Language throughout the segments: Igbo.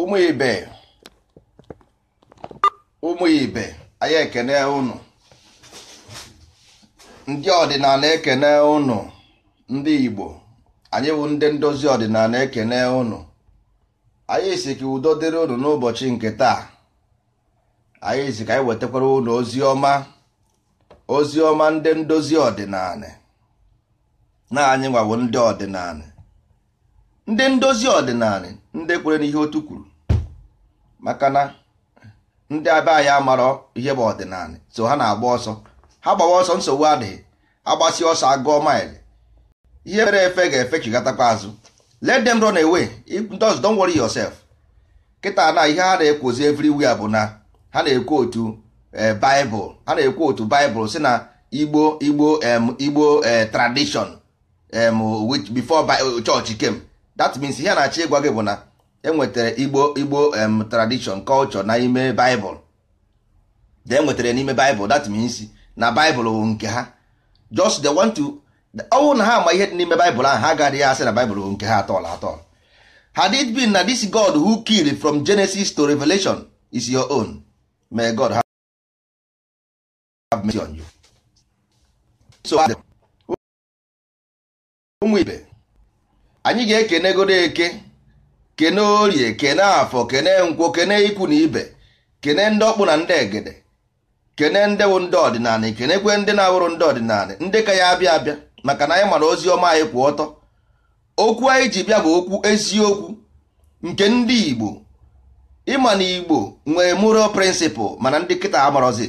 ụmụ ibe ụmụ ibe anyị ekene unu ndị ọdịnala ekene unu ndị igbo anyị bụ ndị ndozi ọdịnala ekene unu anyị si ka udo dịrị unu n'ụbọchị nke taa anyị si ka anyị wetakwara unu ozi ọma ndị ndozi ọdịnala na anyị nwawo ndị ọdịnala ndị ndozi ọdịnala ndị kwere n'ihe otu kwuru maka na ndị abịa anyị amarọ ihe bụ ọdịnala so ha na-agba ọsọ ha gbawa ọsọ nsogbu adịghị agbasi ọsọ agụọ maịlị ihe mere efe ga-efe chigatakwa azụ let them run away don't worry yourself kịta na ihe ha na-ekwozi everywhere bụ na ha na-ekwu otu eh, baịbụl ha na-ekwu otu baịbụl si na igbo igbo igbo eh, tradition bifo before chọọchị kem. that means ihe na-achọ ịgwa gị bụ na enwetara igbo igbo tradition culture n'ime bible de enwetara n'ime baịbụl that means na bible bụ nke ha just the want to ọnwụ na ha ma ihe dị n'ime bible ahụ ha gaghị ya asị na bible bụ nke ha atọla atọla had it been na this god who killed from genesis to revelation is your own may god have mercy on you so ụmụ ibe anyị ga-ekenegodo eke kene orie kene afọ kene nkwo kene ikwu na ibe kene ndị ọkpụ na ndị egede kene ndị bụ ndị ọdịnala kenekwe ndị na-awụrụ ndị ọdịnala ndị ka ya abịa abịa maka na anyị mara ozi ọma anyị kwụ ọtọ okwu anyị ji bịa bụ okwu eziokwu nke ndị Igbo ịma na Igbo nwee moral prịnsịpụl mana ndị kịta amarọzi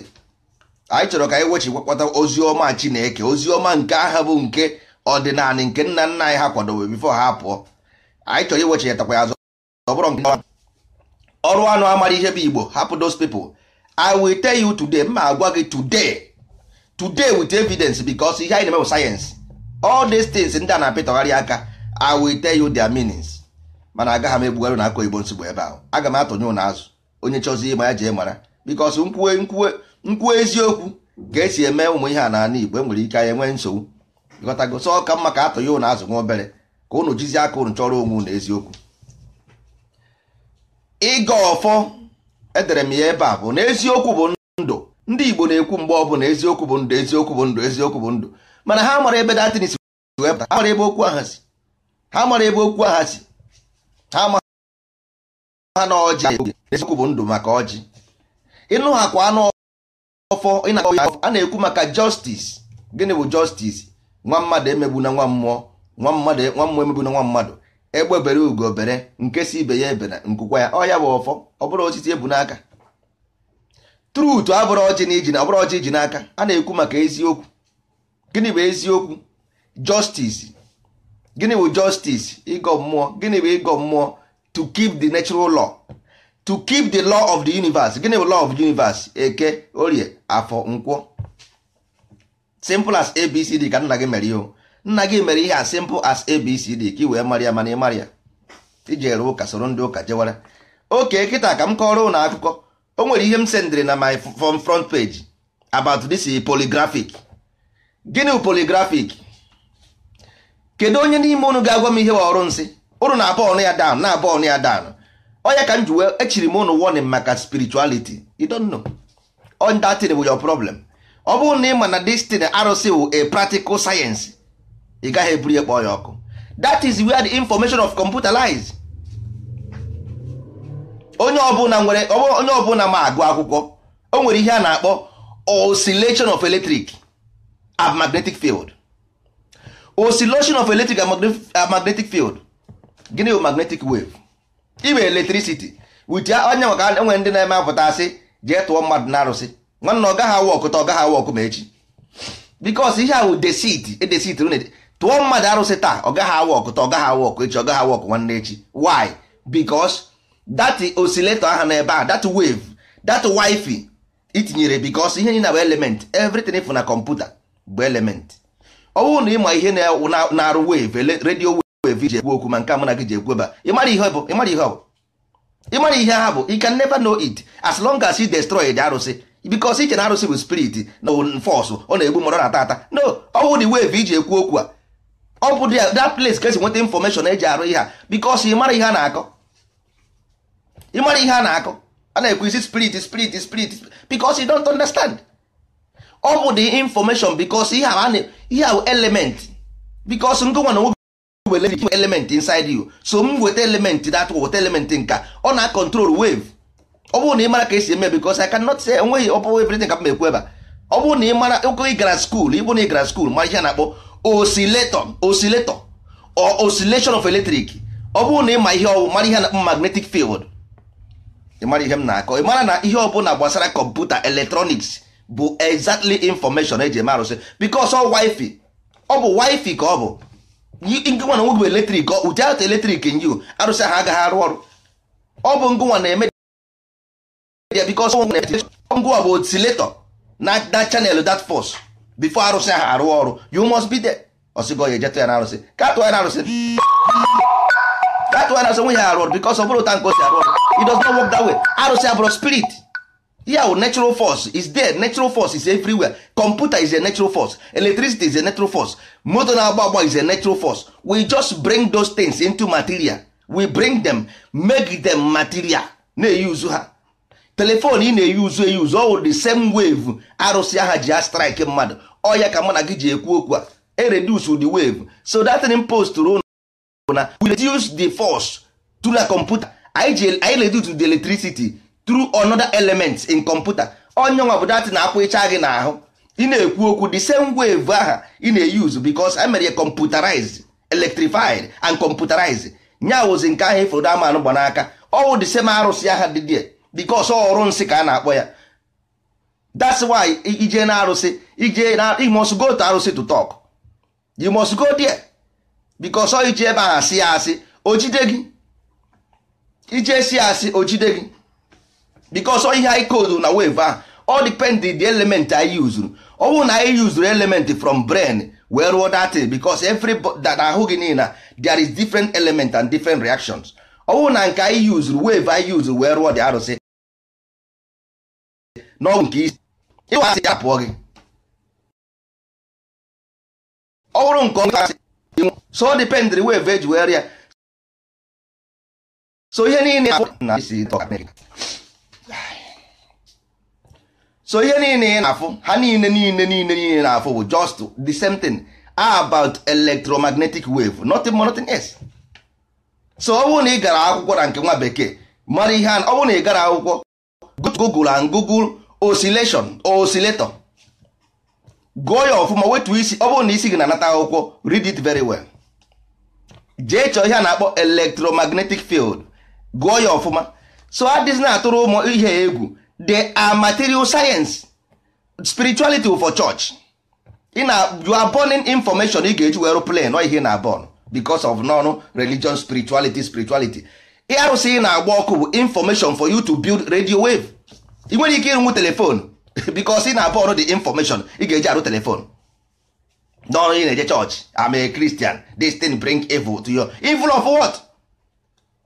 anyị chọrọ ka anyị wechi gwakọta ozi ọma Chineke ozi ọma nke aha bụ nke ọdịnala nke nna nna anyị ha kwadobe bifo ha pụọ anyị chọrọ iwechinetakwa ya azụ ọ bụrụ nke ọrụ anụ amara ihe bụ igbo hapụ those people i will tell you today ma agwa gị today today with evidence because ihe anyị na-eme bụ sayensị all these things ndị a na-apịtọgharị aka i will tell you their meanings mana agaghị m egbugharị na aka oyibo nsogbu ebe ahụ aga m atụnye ụnụ azụ onye chọzi ịma ya jee mara because nkwuwe eziokwu ka esi eme ụmụ ihe a n'ala igbo enwere ike anyị nwee nsogbu ịghọtago sọ ka mma ka atụ ya ụnụ azụ nwa obere ka ụnụ jizi aka ụnụ chọrọ onwe ụnụ eziokwu ịga ọfọ edere m ya ebe a bụ na eziokwu bụ ndụ ndị Igbo na-ekwu mgbe ọ ọbụla eziokwu bụ ndụ eziokwu bụ ndụ eziokwu bụ ndụ mana ha mara ebe datin si wee pụta ha mara ebe okwu aha si ha mara ebe okwu aha si ha ma ha na ọjị eziokwu bụ ndụ maka ọjị ịnụ ha kwa anụ ọfọ a na-ekwu maka justice gịnị bụ justice nwa mmadụ emegbu na nwa mmụọ nwa mmadụ nwa mmụọ emegbu na nwa mmadụ egbe bere ugo obere nke si ibe ya ebere nkụkwa ya ọ ya bụ ọfọ ọ bụrụ osisi ebu n'aka trutu abụrụ ọchị na iji na ọbụrụ ọchị iji n'aka a na-ekwu maka eziokwu gịnị bụ eziokwu justice gịnị bụ justice ịgọ mmụọ gịnị bụ ịgọ mmụọ to keep the natural law to keep the law of the universe gịnị bụ law of the universe eke orie afọ nkwụọ. simple as abcd ka nna gị mere ihe nna gị mere ihe a simple as abcd ka ị wee mara ya mana ị mara ya ijere ụka soro ndị ụka jewara oke kịta ka m kọrọ ụnụ akụkọ o nwere ihe m sendịrị na my front page about this polygraphic gịnị polygraphic kedu onye n'ime unu ga-agwa m ihe ọrụ nsị unu na-abụ ọnụ ya down na-abụ ọnụ ya down onye ka m ji echiri e m unu warning maka spirituality you don't know on that thing with your problem ọ bụrụ na ị ma na destin arụsị wụ a practical science ị gaghị eburu ya ya ọkụ that is where the information of computer lies onye ọbụla nwere onye ọbụla ma agụ akwụkwọ o nwere ihe a na-akpọ oscillation of electric and magnetic field oscillation of electric and magnetic field gịnị bụ magnetic wave iwe electricity wit onye maka enwere ndị na-eme apụta asị jee tụọ mmadụ na arụsị nwanne ọ gaghị awa ọkụta ọ gaghị awa ọkụ ma echi bikos ihe ahụ desit edesit tụọ mmadụ arụsị taa ọ gaghị awa ọkụta ọ gaghị awa ọkụ echi ọ gaghị awa ọkụ nwanne echi why bikos dat osileto aha n'ebe a dat wave dat wifi itinyere bikos ihe niile bụ element everything fụ na kọmputa bụ element ọ bụrụ na ịma ihe na-arụ wave redio wave ji ekwu okwu ma nke a gị ji ekwu ebe a ịmara ihe ihe ọ bụ ịmara ihe ha bụ you can never know it as long as you destroy the arụsị bikos iche na arụsị bụ spirit na fọsụ ọ na-egbu mmadụ na ata no ọwụ dị wave iji ekwu okwu a ọ bụ that place ka esi nweta infọmeshọn eji arụ ihe a bikos ịmara ihe a na-akọ ịmara ihe a na-akọ a na-ekwu isi spirit spirit spirit bikos you don't understand ọ bụ the information bikos ihe a bụ element bikos ngụnwa na nwoke were element inside you so m weta element that weta element nka ọ na-control wave ọ bụrụ na ị mara ka esi eme because I cannot say enweghị ọ bụrụ everything ka m ekwu ebe a ọ bụrụ na ị mara ụkọ ị gara skuul ịbụ na ị gara skuul ma ihe na-akpọ oscillator oscillator or osilation of electric ọ bụrụ na ị ma ihe ọwụ mara ihe na magnetic field ị mara ihe m na-akọ ị mara na ihe ọbụla gbasara kọmputa electronics bụ exactly information eji eme arụsị because ọ wifi ọ bụ wifi ka ọ bụ ngịnwa na nwoke bụ eletrik ụdị atụ eletrik nyi arụsị ha agaghị arụ ọrụ ọ bụ ngụnwa na-eme yeah because ngụ ọ bụ oscillator na na channel that force before arụsị ahụ arụ ọrụ you must be there ọsịgo ya ejetụ ya na arụsị katụọ ya na arụsị katụọ ya na arụsị ya arụ ọrụ because ọ bụrụ nke o arụ ọrụ it does not work arụsị abụrụ spirit yeah natural force is there natural force is everywhere computer is a natural force electricity is a natural force na-agba agba is a natural force we just bring those things into material we bring them make them material na-eyuzu ha telefon ị na-eyi uzu eyi uzu ọwụ the same wave arụsị aha ji a strike mmadụ ọya ka mụ na gị ji ekwu okwu a ereduce the wave so that in post rụ na we reduce the force through the computer anyị reduce the electricity through another element in computer onye nwa bụ dat na-akwụ ịcha gị n'ahụ ị na-ekwu okwu the same wave aha ị na-eyuzu because emere ya computerized electrified and computerized nya wụzi nke ahụ ịfụrụ e amanụ gba n'aka ọwụ the same arụsị aha dị dị because ọrụ nsị ka a na-akpọ ya that's why ije na arụsị ije na you must go to arụsị to talk you must go there because ọ ije ebe ahụ asị ya asị ojide gị ije si asị ojide gị because ọ ihe anyị koodu na wave ahụ all depend the element anyị uzuru ọ bụrụ na anyị uzuru element from brain wee rụọ data because every that ahụ gị niile there is different element and different reactions ọ bụrụ na nke anyị yuzuru wave anyị yuzuru wee rụọ dị arụsị n'ọgwụ nke isi ịwa asị ya pụọ gị ọ bụrụ nke ọnwụ asị so dependri weve eji were ya so ihe niile so ihe niile ị na-afụ ha niile niile niile niile na-afụ bụ just the same thing about electromagnetic wave nothing more nothing else so ọ bụrụ na ị gara akwụkwọ na nke nwa bekee mara ihe ọ bụrụ na ị gara akwụkwọ google and google oscillation oscillator gụọ ya ọfụma wetu isi ọ bụrụ na isi gị na-anata akwụkwọ read it very well jee chọọ ihe a na-akpọ electromagnetic field gụọ ya ọfụma so adịz na-atụrụ ụmụ ihe egwu they are material science spirituality for church ị na you are burning information ị ga-eji were plan ọ ihe na bon bicos of non religion spirituality spirituality ihe ahụ si na-agba ọkụ bụ information for you to build radio wave ị nwere ike ịrụnwu telefon because ị na-abụ ọrụ the information ị ga-eji arụ telefon n'ọrụ ị na-eje church I'm a Christian this thing bring evil to your evil of what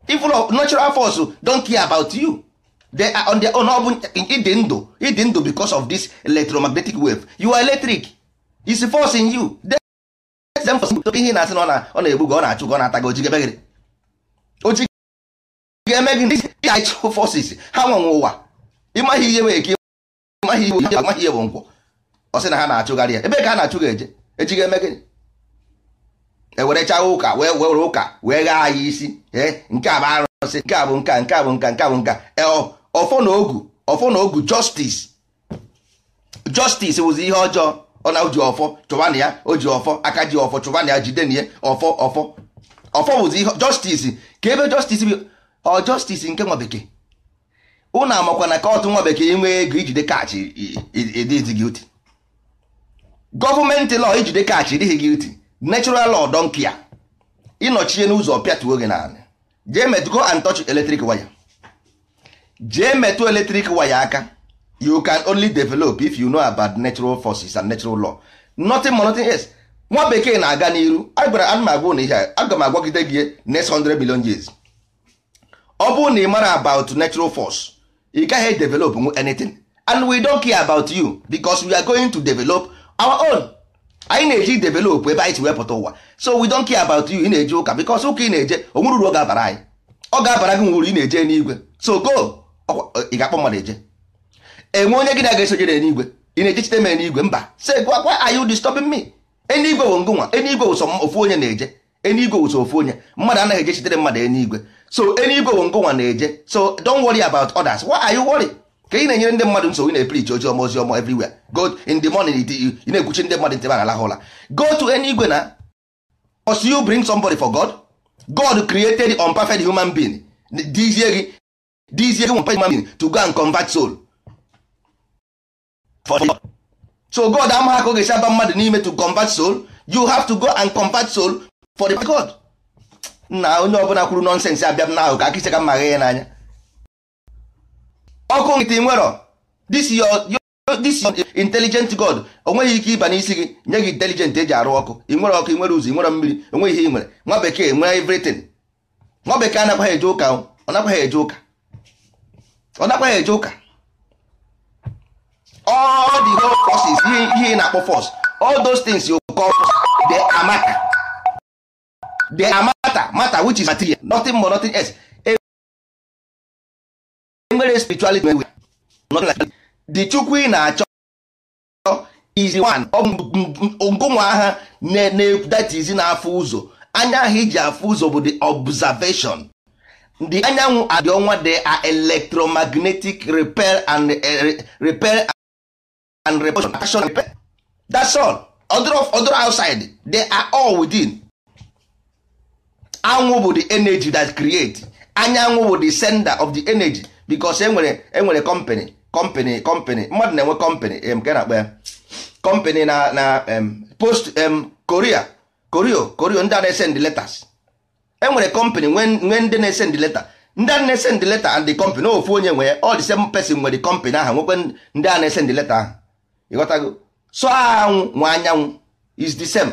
evil of natural force don't care about you they are on their own ọ bụ ịdị ndụ ịdị ndụ because of this electromagnetic wave you are electric is force in you ihe na-asị na ọ na-egbu gị ọ na-achụ gị ọ na-ata gị ojigebe ga-eme gị ndị forces ha nwenwe ụwa ịmaghị ihe bụ eke ịmaghị ihe amaghị ihe bụ nkwọ ọ sị na ha na-achụgharị ya ebe ka a na-achụ ga eje echi ga-eme gịnị ewerecha ụka wee were ụka wee ghaa ya isi ee nke a bụ arụsị nke a bụ nka nke a bụ nka nke a bụ nka e, ọfọ na ogu ọfọ na ogu justice justice wụzi ihe ọjọọ ọ na ji ọfọ chụbanụ ya o ji ọfọ aka ji ọfọ chụbanụ ya jide na ya ọfọ ọfọ ọfọ bụzi ihe justice ka ebe justice ọ justice nke nwa bekee ụnụ amakwa na kọtụ nwa bekee nwee ego ijide kaachị ịdịghị guilty gọọmenti law ijide kaachị ịdịghị guilty natural law donkia ya ịnọchie n'ụzọ pịatuo gị naanị jee metụ go and touch electric waya jee metụ electric waya aka you can only develop if you know about natural forces and natural law nothing more nothing else nwa bekee na-aga n'iru agwara ana m na ihe aga m agwagide gị next 100 million years ọ bụrụ na ị mara about natural force ị gaghị develop anything and we don't care about you because we are going to develop our own anyị na-eji develop ebe anyị si wepụta ụwa so we don't care about you ị na-eje ụka because ụka ị na-eje onwere uru ọ ga-abara anyị ọ ga-abara gị nwuru ị na-eje n'igwe so go ị ga-akpọ mmadụ eje enwe onye gị na-aga esojere n'igwe ị na-eje chite mee n'igwe mba say gwa are you disturbing me enigwe bụ ngụnwa enigwe wụsọ ofu onye na-eje enigwe wụsọ ofu onye mmadụ anaghị eje chitere mmadụ enigwe so enyi igwe bụ nkụnwa na-eje so don't worry about others why are you worry ka ị na-enyere ndị mmadụ nsogbu na-eprich ozi ọma ozi ọma everywhere go in the morning ị na-ekwuchi ndị mmadụ ntebe aghalaha ụla go to any igwe na must you bring somebody for God God created unperfect human being dizie gị dizie gị unperfect human being to go and convert soul for God. so God amaghị ka ọ ga-esi aba mmadụ n'ime to convert soul you have to go and convert soul for the God na onye ọbụla kwuru nọnsensị abịa m n'ahụ ka akịsị ka mma ya n'anya ọkụ nkịtị nwero this your intelligent god onweghị ike ịba n'isi gị nye gị intelijent eji arụ ọkụ ị nwere ọkụ ị nwere ụzọ ị nwere mmiri onweghị ihe ị nwere nwa bekee nwere everything nwa bekee anakwaghị eje ụka ọ nakwaghị eje ụka ọ nakwaghị eje ụka all the whole forces ihe ị na-akpọ fọs all those things amaka they amaka mata mata which is material nothing more nothing else enwere spirituality nwe nothing like the chukwu ị na-achọ is one ngonwa agha that is na-afụ ụzọ anya ahụ iji afụ ụzọ bụ the observation the anyanwụ adị ọnwa they are electromagnetic repair and eh, repair and repulsion that's all other outside they are all within anwụ bụ the energy that create anyanwụ bụ the sender of the energy because enwere enwere company company company mmadụ na-enwe company nke na-akpọ ya company na na post korea korio korio ndị a na-esend letters enwere company nwee ndị na-esend letter ndị a na-esend letter and the company ofu onye nwere all the same person nwere company ahụ nwekwe ndị a na-esend letter ahụ ịghọtago so anwụ nwa anyanwụ is the same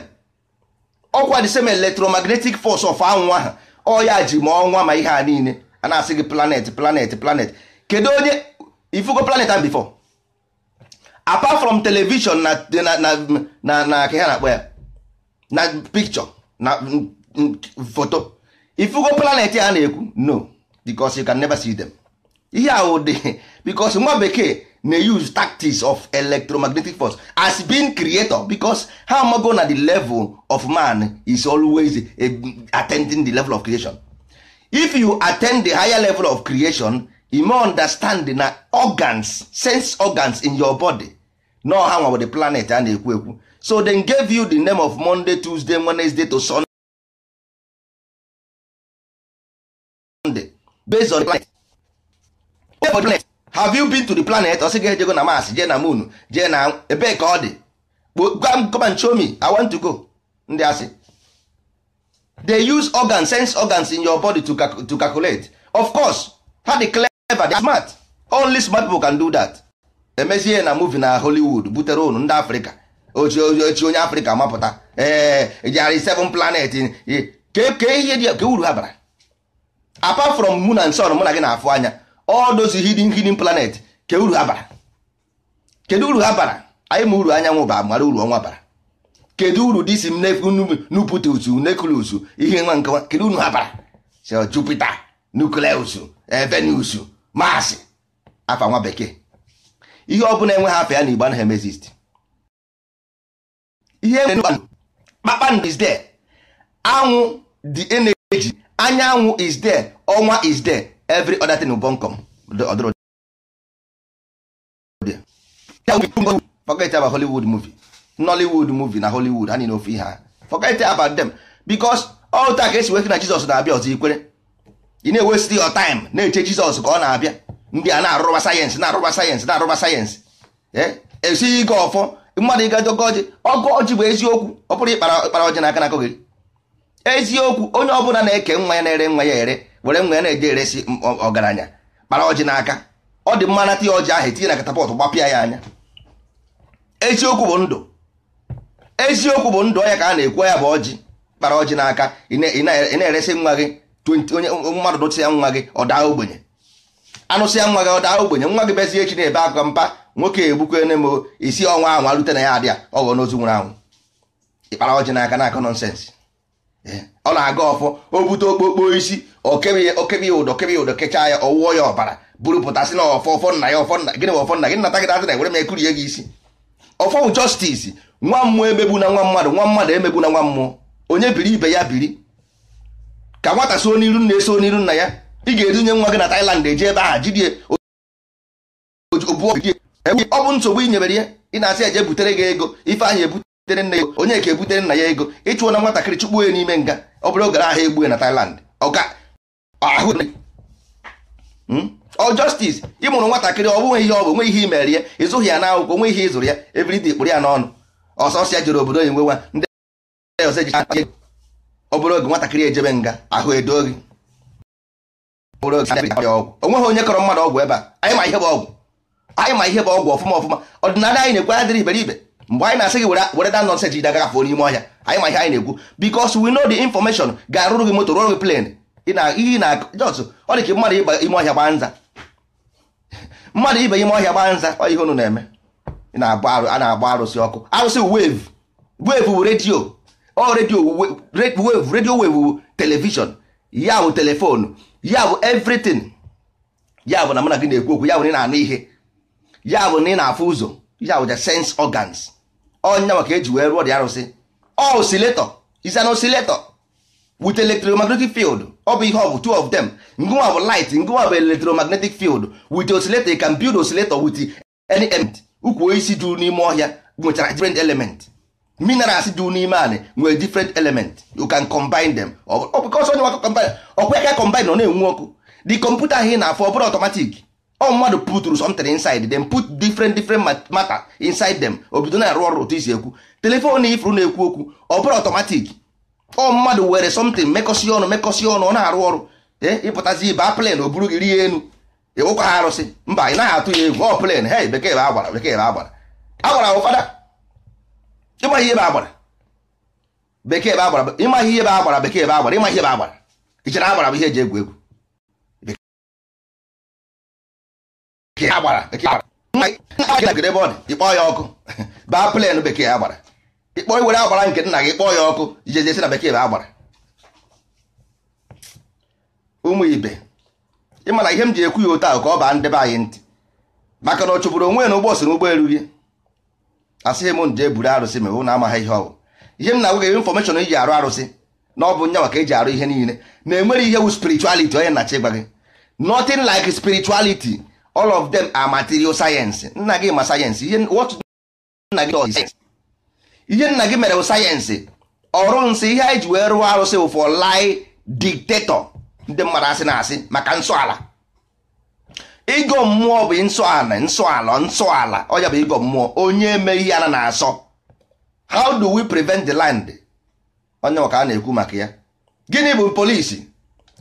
ọkwa the same electromagnetic force of anwụ ahụ ọya ji ma ọnwa ma ihe a niile a na-asị gị planet planet planet kedu onye ifugo planet ahụ before apart from television na na na na ka ha na-akpọ ya na picture na foto ifugo planet a na-ekwu no because you can never see them ihe ahụ dị bicos nwa bekee na-use tactics of electromagnetic force as being creator because how amago na the level of man is always attending the level of creation if you attend the higher level of creation you may understand na organs sense organs in your body no ha nwa the planet a na-ekwu ekwu so they gave you the name of monday tuesday wednesday to sunday based on the planet. have you been to the planet ọ sị gị ejego na Mars jee na moon jee na ebee ka ọ dị gwa I want to go ndị asị they use organs sense organs in your body to, cal to calculate of course ha dị clever they smart only smart people can do that emezie na movie na Hollywood butere unu ndị Afrịka ochi onye Afrịka mapụta ee e jari seven planet ka ihe ka uru ha bara apart from moon and sun mụ na gị na-afụ anya all those hidden hidden planet ke uru ha bara kedu uru ha bara anyị ma uru anyanwụ ba mara uru ọnwa bara kedu uru disi m nuputus nucleus ihe nwa nkewa kedu uru ha bara so Jupiter nucleus Venus Mars afa nwa bekee ihe ọ bụla enwe ha afọ ya na igbo anaghị emezist ihe kpakpando is there anwụ the energy anyanwụ is there ọnwa is there every other thing bonkom ọdụrụ forget about hollywood movie nollywood movie na hollywood anyị n'ofe ihe ha forget about them because all ta ka esi wee na jizọs na-abịa ọzọ ikwere ị na-ewesti your time na-eche jizọs ka ọ na-abịa ndị a na-arụba sayensị na-arụba sayensị na-arụba sayensị esighị eh? e ike ọfọ mmadụ ịga dogo ọjị ọgụ ọjị bụ eziokwu ọ bụrụ ịkpara ọjị n'aka na akogiri eziokwu onye ọbụla na-eke nwa ya na-ere nwa ya ere were nwe ya na e eresi ọgaranya kpara ọjị n'aka ọ dị mma nata ya ọjị ahụ etinye na katapọtụ gbapịa ya anya eziokwu bụ ndụ eziokwu bụ ndụ ọnya ka a na-ekwu ya bụ ọjị kpara ọjị n'aka ị na-eresi nwa gị onye mmadụ ya nwa gị ọ daa ogbenye ya nwa gị ọ daa ogbenye nwa gị bezi echi na-ebe aka mpa nwoke egbukwe ne m isi ọnwa ahụ alute na ya adịa ọghọ n'ozu nwụrụ anwụ ịkpara ọjị n'aka na akọ nọnsensị ọ na-aga ọfọ o bute okpokpo isi okebe ya okebe ụdọ okebe ya ụdọ kechaa ya ọwụọ ya ọbara buru pụtasị na ọfọ ọfọ nna ya ọfọ nna gịnị bụ ọfọ nna gị nata gị na ewere m ekuri ya gị isi ọfọ bụ justice nwa mmụọ emegbu na nwa mmadụ nwa mmadụ emegbu na nwa mmụọ onye biri ibe ya biri ka nwata so n'iru nna eso n'iru nna ya ị ga nye nwa gị na Thailand eji ebe ahụ jidie ọ bụ nsogbu i nyebere ya ị na-asị eje butere gị ego ife ahụ ebute butere nna onye ka ebutere nna ya ego ịchụọ na nwatakịrị chụkpuo ya n'ime nga ọ bụrụ ogara ahụ egbue na Thailand hmm? ọ justice ị mụrụ nwatakịrị ọ bụghị ihe ọ bụ nwe ihe imere ya ịzụghị ya n'akwụkwọ nwe ihe ịzụrụ ya everything kpụrụ ya n'ọnụ ọsọsọ ya jere obodo nwe nwa ndị ọzọ ọ bụrụ oge nwatakịrị ejebe nga ahụ edo gị onweghị onye kọrọ mmadụ ọgwụ ebe a anyị ma ihe bụ ọgwụ anyị ihe bụ ọgwụ ọfụma ọfụma ọdịnala anyị na-ekwe adịrị iberibe mgbe anyị na-asị gị were da nọnsens ji dagagafụ n'ime ọhịa anyị ma ihe anyị na-ekwu bikos we know the information ga-arụrụ gị motor rụrụ gị plen ihe na jọs ọ dị ka mmadụ ịba ime ọhịa gba nza mmadụ ibe ime ọhịa gbaa nza ihe unu na-eme a na-agba arụsị ọkụ arụsị wave wave bụ redio ọ redio wave redio wave bụ telivishọn ya bụ telefoonu ya bụ everything ya bụ na mụ gị na-ekwu okwu ya bụ na ị na-anụ ihe ya bụ na ị na-afụ ụzọ ya bụ the sense organs ọnya maka eji wee rụọ dị arụsị osileto is an oscillator with electromagnetic field ọ bụ ihe ọ bụ two of them ngụwa bụ light ngụwa bụ electromagnetic field with osileto you can build osileto with any element ukwu osisi dị n'ime ọhịa nwechara different element minerals dị n'ime anị nwere different element you can combine them ọkwa ka combine ọ na-enwu ọkụ the kọmputa ahụ na-afọ ọ bụrụ automatic ọ mmadụ puturu something inside them put different different matter inside them obido na-arụ ọrụ otu isi ekwu telefon ifuru na-ekwu okwu ọ bụrụ automatic ọ mmadụ were something mekọsi ọnụ mekọsi ọnụ ọ na-arụ ọrụ ịpụtazi ibe a plen o buru gị rie enu ịwụkwa ha arụsị mba ị naghị atụ ya egwu ọ plen he bekee bụ agbara bekee bụ agbara agbara bụ fada ịmaghị ihe bụ agbara bekee bụ agbara ịmaghị ihe bụ agbara bekee bụ agbara ịmaghị ihe bụ agbara ichere agbara bụ ihe eji egwu egwu bekee agbara bekee ebe ọ dị ịkpọ ya ọkụ baa plen bekee agbara ịkpọ iwere agbara nke nna gị kpọọ ya ọkụ jejesi na bekee bụ agbara ụmụ ibe ịma na ihe m ji ekwu ya otu ahụ ka ọ baa ndebe anyị ntị maka na ọ chụpụrụ onwe na ụgbọ si n'ụgbọelu gị asịghị m nje buru arụsị ma na amaghị ihe ọgwụ ihe m na-agwa gị infọmeshọn iji arụ arụsị na ọ bụ nya maka e ji arụ ihe niile na enwere ihe wu spirituality onye nnachi gwa gị notin like spirituality all of them are material science nna gị ma sayensị ihe nna gị ihe nna gị mere bụ sayensị ọrụ nsị ihe anyị ji wee rụọ arụsị bụ for lie dictator ndị mmadụ asị na asị maka nsọala ịgọ mmụọ bụ nsọala nsọala nsọala ọya bụ ịgọ mmụọ onye eme ya a na-asọ how do we prevent the land onye maka a na-ekwu maka ya gịnị bụ polisi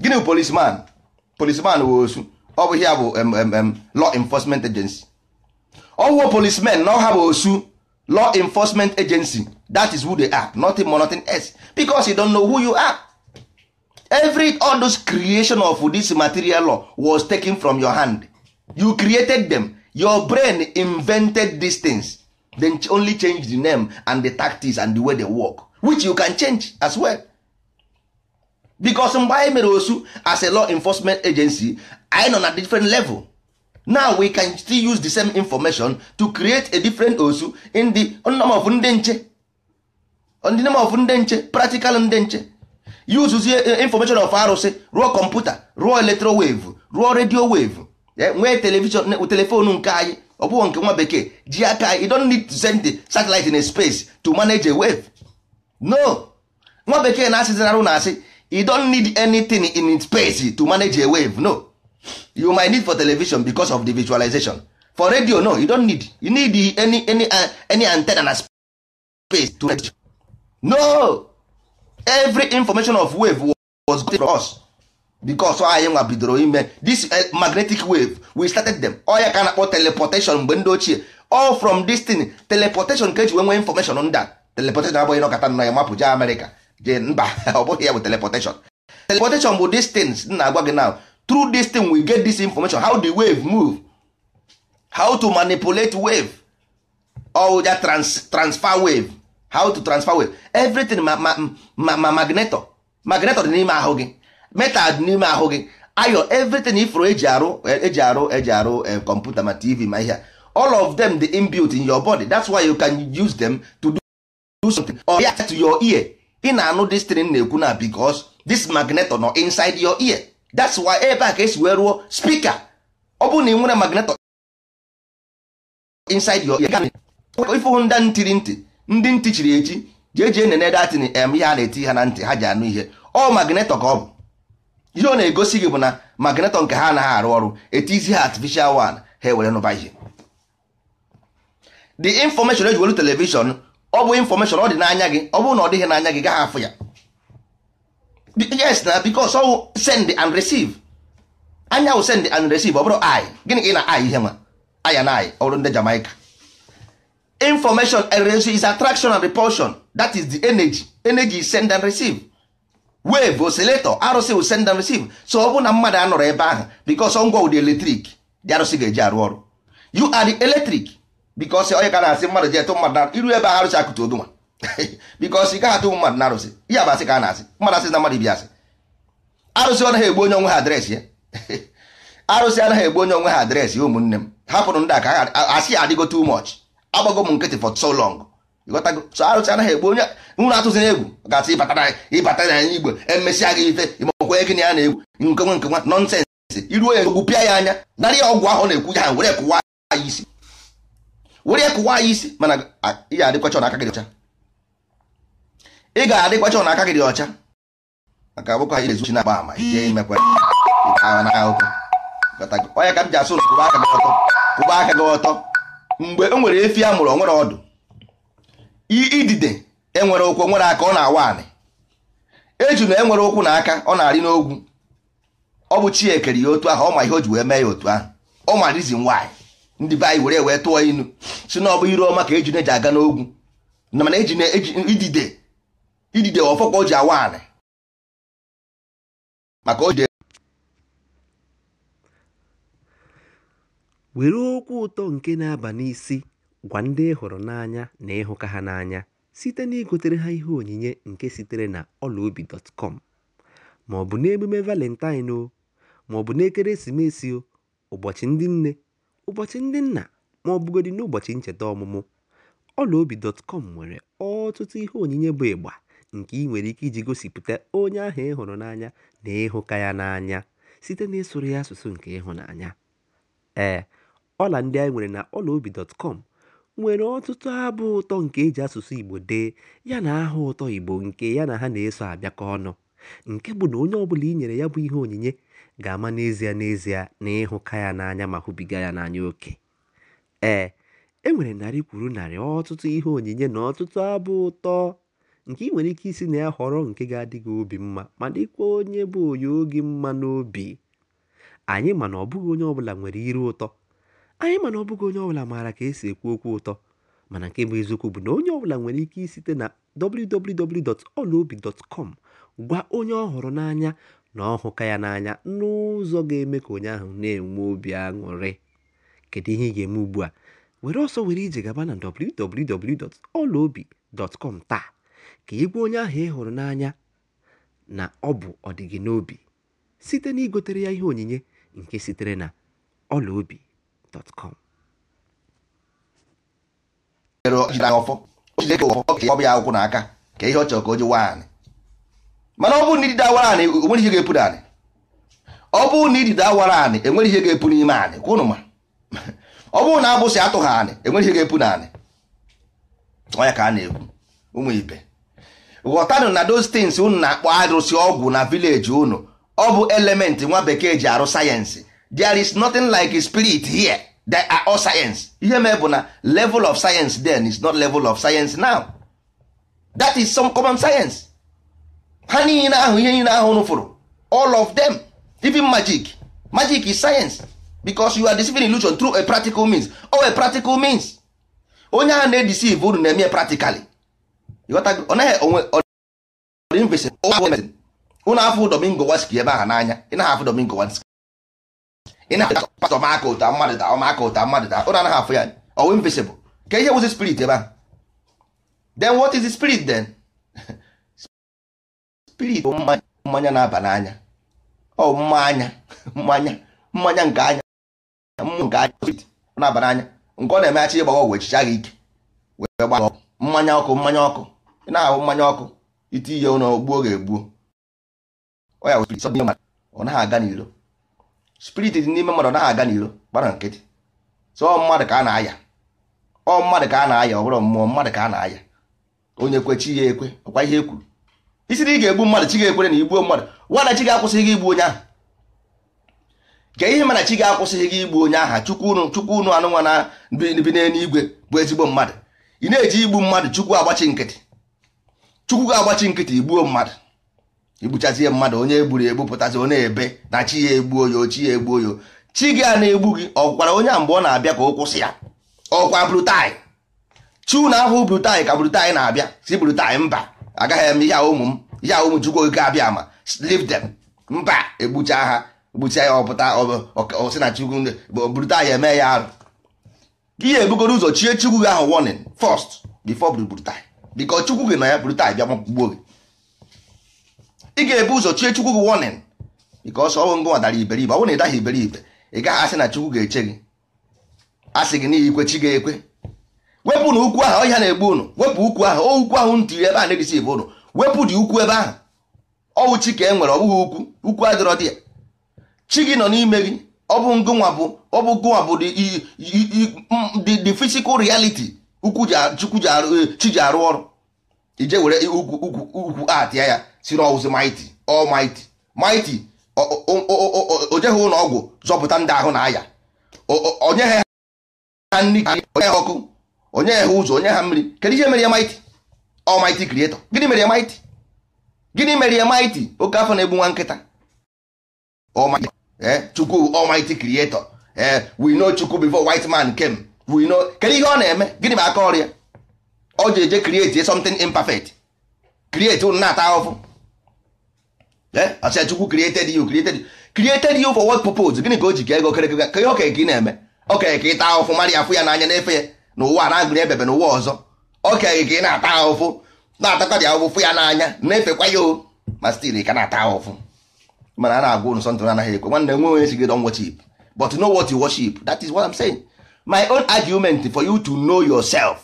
gịnị bụ polisman polisman bụ osu ọ bụ ihe bụ law enforcement agency ọwụwa policemen na ọha bụ osu law enforcement agency that is who they are nothing more nothing else becos you don know who you are every all those creation of this material law was taken from your hand you created them your brain invented these things then only change the name and the tactics and the way they work which you can change as well bikos mgbe anyị mere osu as a law enforcement agency anyị nọ na different level now we can still use the same information to create a different osu in the of ndị nche practical ndị nche use eh, eh, information of arụsị rụọ kọmputa rụọ electro wave rụọ radio wave eh, nwee television nke anyị ọ bụ nke nwa bekee ji aka you don't need to send the satellite in a space to manage a wave no nwa bekee na-asịzinarụ na asị you don't need anything in space to manage a wave no you might need for television because of the visualization for radio no you don't need you need any any uh, any antenna na space to manage. no every information of wave was good for us because anyị nwa bidoro ime this uh, magnetic wave we started them ọya oh, ka na-akpọ teleportation mgbe ndị ochie all from this thing teleportation ka eji nwee information on a teleportation abụghị nọkọta nọ ya mapụ jee america. jee mba ọ bụghị ya bụ teleportation teleportation bụ distance m na-agwa gị now through this we get this information how the wave move how to manipulate wave or ja trans, transfer wave how to transfer wave everything ma ma ma, ma magnetor magnetor dị n'ime ahụ gị metal dị n'ime ahụ gị ayo everything ifro eji arụ eji arụ eji arụ kọmputa eh, ma tv ma ihe all of them dị inbuilt in your body that's why you can use them to do, do something or to your ear ị na-anụ this na-ekwu na because this magneto nọ inside your ear that's why ebe a ka esi wee rụọ spika ọ bụrụ na ị nwere magneto inside your ear ifụhụ ndị ntiri ntị ndị ntị chiri echi jee jee nene datin em ihe a na-eti ha na ntị ha ji anụ ihe ọ magnetọ ka ọ bụ ihe ọ na-egosi gị bụ na magnetọ nke ha anaghị arụ ọrụ etizi ha artificial one ha ewere nụba ihe the information eji welu telivishọn ọ bụ infọmeshọn ọ dị n'anya gị ọ bụrụ na ọ dịghị n'anya gị gaghị afụ ya yes na bikos ọ send and receive anya wụ send and receive ọ bụrụ i gịnị ka ị na i ihe ma aya na i ọrụ ndị jamaica information and is attraction and repulsion that is the energy energy is send and receive wave oscillator arụsị wụ send and receive so ọ bụ na mmadụ anọrọ ebe ahụ bikos ọ ngwa ụdị eletrik dị arụsị ga-eji arụ ọrụ you are the electric bikọsi onye ka na-asị mmadụ ji etụ mmadụ na iru ebe a arụsị akụtụ odunwa bikọsi gaghị atụ mmadụ na arụsị ihe abasị ka a na-asị mmadụ asị na mmadụ ibi asị arụsị anaghị egbu onye onwe ha adreesị ya eh? arụsị anaghị egbu onye onwe ha adreesị ụmụnne m hapụrụ ndị aka asị adịgo tu much agbago m nkịtị for so long ịghọtago so arụsị anaghị egbu onye nwụrụ atụzi na egwu gasị ịbata na anya igbo emesịa gị ife ịmakwa ego na ya na-egwu nkenwe nkenwa nọnsensị iruo ya egwu pịa ya anya narị ọgwụ ahụ na-ekwu ya ha were kụwa ya isi were ya kụwa anyị isi mana ị ga-adịkwacha n'aka gị ọcha ị ga-adịkwacha n'aka gị ọcha maka abụkọ anyị na-ezuchi na-agba ama ihe imekwa agha n'aka ụkwụ onye ka m ji asụ ụlọ kụba aka gị ọtọ kụba aka gị ọtọ mgbe o e nwere efi a mụrụ onwere ọdụ idide enwere ụkwụ nwere aka ọ na-awa anị eju na enwere ụkwụ na aka ọ na-arị n'ogwu ọ bụ chi ekere ya otu ahụ ọ ma ihe o ji wee mee ya otu ahụ ọ ma rizin nwaanyị ndị be anyị were wee tụọ inu si na ọ bụ iru ọma ka ejine ji aga n'ogwu na mana ejine idide idide ọfọkwa o ji awa anị maka o jide were okwu ụtọ nke na-aba n'isi gwa ndị ị n'anya na ịhụka ha n'anya site na igotere ha ihe onyinye nke sitere na ọlaobi.com ma ọ bụ n'emume valentine o ma ọ bụ n'ekeresimesi o ụbọchị ndị nne Ụbọchị Ndị Nna, ma ọ bụgodị n'ụbọchị ncheta ọmụmụ, ọlaobi.com nwere ọtụtụ ihe onyinye bụ ịgba nke ị nwere ike iji gosipụta onye ahụ ị hụrụ n'anya na ịhụka ya n'anya site n'ịsụrụ ya asụsụ nke ịhụnanya. Ee, ọla ndị anyị nwere na ọlaobi.com nwere ọtụtụ abụ ụtọ nke e ji asụsụ Igbo dee yana aha ụtọ Igbo nke ya na ha na-eso abịakọ ọnụ, nke bụ na onye ọbụla i nyere ya bụ ihe onyinye ga-ama n'ezie n'ezie na ịhụka ya n'anya ma hụbiga ya n'anya oke ee e nwere narị kwuru narị ọtụtụ ihe onyinye na ọtụtụ abụ ụtọ nke ị nwere ike isi na ya họrọ nke ga adịghị obi mma ma dịkwa onye bụ onye oge mma n'obi anyị mana ọbụghị onye ọbụla nwere iru ụtọ anyị mana ọbụghị onye ọbụla maara ka esi ekwu okwu ụtọ mana nke bụ eziokwu bụ na onye ọbụla nwere ike isite na www.olobi.com gwa onye ọ hụrụ n'anya na ọ ya n'anya n'ụzọ ga-eme ka onye ahụ na-enwe obi aṅụrị kedu ihe ị ga-eme ugbu a were ọsọ were ije gaba na www.ọlaobi.com taa ka ị onye ahụ ị hụrụ n'anya na ọ bụ ọdịgị n'obi site na igotere ya ihe onyinye nke sitere na ọlaobi.com ọ bụ ya akwụkwọ n'aka ka ihe ọ ka o ji nwaanyị mana ọ bụrụ na idide awara anị enwere ihe ga-epu n'anị ọ bụrụ na idide awara anị enwere ihe ga-epu n'ime anị kwụnụ ma ọ bụrụ na abụsị atụ ha anị enwere ihe ga-epu n'anị ọya ka a na-ekwu ụmụ ibe ghọtanụ na those things unu na-akpọ arụsị ọgwụ na vileji unu ọ bụ elementị nwa bekee ji arụ sayensị there is nothing like spirit here that are all science ihe mee bụ na level of science then is not level of science now that is some common science ha niile ahụ ihe niile ahụ nụfụrụ all of them even magic magic is science because you are deceiving illusion through a practical means or oh, a practical means onye ahụ na-edeceive unu na-eme practically unu afụ Domingo Waski ebe ahụ n'anya ị naghị afụ Domingo Waski ị na-afụ pastọ maka ụta mmadụ da maka ụta mmadụ da unu anaghị afụ ya ọwụ invisible ka ihe wụzi spirit ebe ahụ then what is the spirit then spirit mmanya na-aba n'anya ọ mmanya mmanya mmanya nke anya nke anya na-aba n'anya nke ọ na eme ịgbawa ọgwụ echicha gị ike wee gba ọgwụ mmanya ọkụ mmanya ọkụ ị na-ahụ mmanya ọkụ ite ihe ụlọ gbuo ga-egbuo ọ ya spirit ọ naghị aga n'iro spirit dị n'ime mmadụ ọ naghị aga n'iro gbara nkịtị so ọ mmadụ ka a na-aya ọ mmadụ ka a na-aya ọ bụrụ mmụọ mmadụ ka a na-aya onye kwechi ya ekwe ọkwa ihe e isi ị ga-egbu mmadụ chi ga-ekwere na igbuo mmadụ nwana chi ga-akwụsịghị gị igbu onye ahụ gee ihe mana chi ga-akwụsịghị gị igbu onye aha chukwu unu chukwu unu anụnwa na bi n'eluigwe bụ ezigbo mmadụ ị na-eji igbu mmadụ chukwu agbachi nkịtị chukwu ga-agbachi nkịtị igbuo mmadụ igbuchazie mmadụ onye egburu egbu pụtazi onye ebe na chi ya egbuo ya chi ya egbuo ya chi gị a na-egbu gị ọkwara onye a mgbe ọ na-abịa ka ọ kwụsị ya ọkwa brutai chi unu ahụ brutai ka brutai na-abịa si brutai mba agaghị eme ihe ụmụ m ya ụmụ chukwu ga abịa ama leave dem mba egbucha ha egbucha ya ọpụta ọsị na chukwu burita ya eme ya arụ ihe ebugoro ụzọ chie chukwu gị ahụ warning first before burita because chukwu gị na ya burita bịa gbuo gị ị ga-ebu ụzọ chie chukwu gị warning because ọnwụ ngụ dara iberibe ọ bụrụ na ị daghị iberibe ị gaghị asị na chukwu ga-eche gị asị gị n'ihi ikwe chi ga-ekwe wepụ na ukwu ahụ ọhịa na-egbu unu wepụ ukwu ahụ ukwu ahụ ntiri ebe a na-edisi ebe ụnụ wepụ dị ukwu ebe ahụ ọwụ chi ka e nwere ọ bụghị ukwu ukwu adịrọ dị ya chi gị nọ n'ime gị ọ bụ ngụnwa bụ ọ bụ gụnwa bụ the physical reality ukwu eh, chi ji arụ ọrụ ije were ukwu atịa ya siri ọwụzi ọ almighty mighty o jeghị ụlọ ọgwụ zọpụta ndị ahụ na aya onye ha onye ha ọkụ onye ha ụzọ onye ha mmiri kedu ihe mere ya maịtị ọmaịtị krietọ gịnị mere ya maịtị gịnị mere ya maịtị oke afọ na-egbu nwa nkịta eh, chukwu ọmaịtị krietọ eh, we know chukwu before white man came we know kedu ihe ọ na-eme gịnị ma aka ọrụ ya ọ ji eje create something imperfect create unu na-ata ahụhụ eh, asịa chukwu created you created you created you for what purpose gịnị ka o ji ka ego kerekere ka ihe okenye ka ị na-eme okenye ka ị taa ahụhụ mara ya afụ ya n'anya na-efe ya n'ụwa na-agụrụ ebebe n'ụwa ọzọ ọ ka ị na-ata ahụfụ na-atakwa dị ahụfụ ya n'anya na-efekwa ya o ma stil ka na-ata ahụfụ mana a na-agwa ụnụ sọntụ anaghị ekwe nwanne nwe onye sigị don worship but know what you worship that is what I'm saying my own argument for you to know yourself